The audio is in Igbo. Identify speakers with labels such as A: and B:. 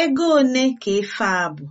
A: Ego one ka efe a bụ?